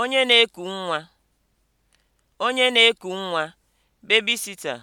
Onye na-eku nwa. Onye na-eku nwa (babysitter)